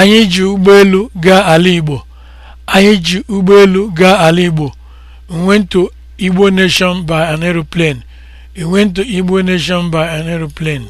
Anyị ji ụgbọelu gaa ala Igbo. Anyị ji ụgbọelu gaa ala Igbo. We went to Igbo Nation by an aeroplane. We went to Igbo Nation by an aeroplane.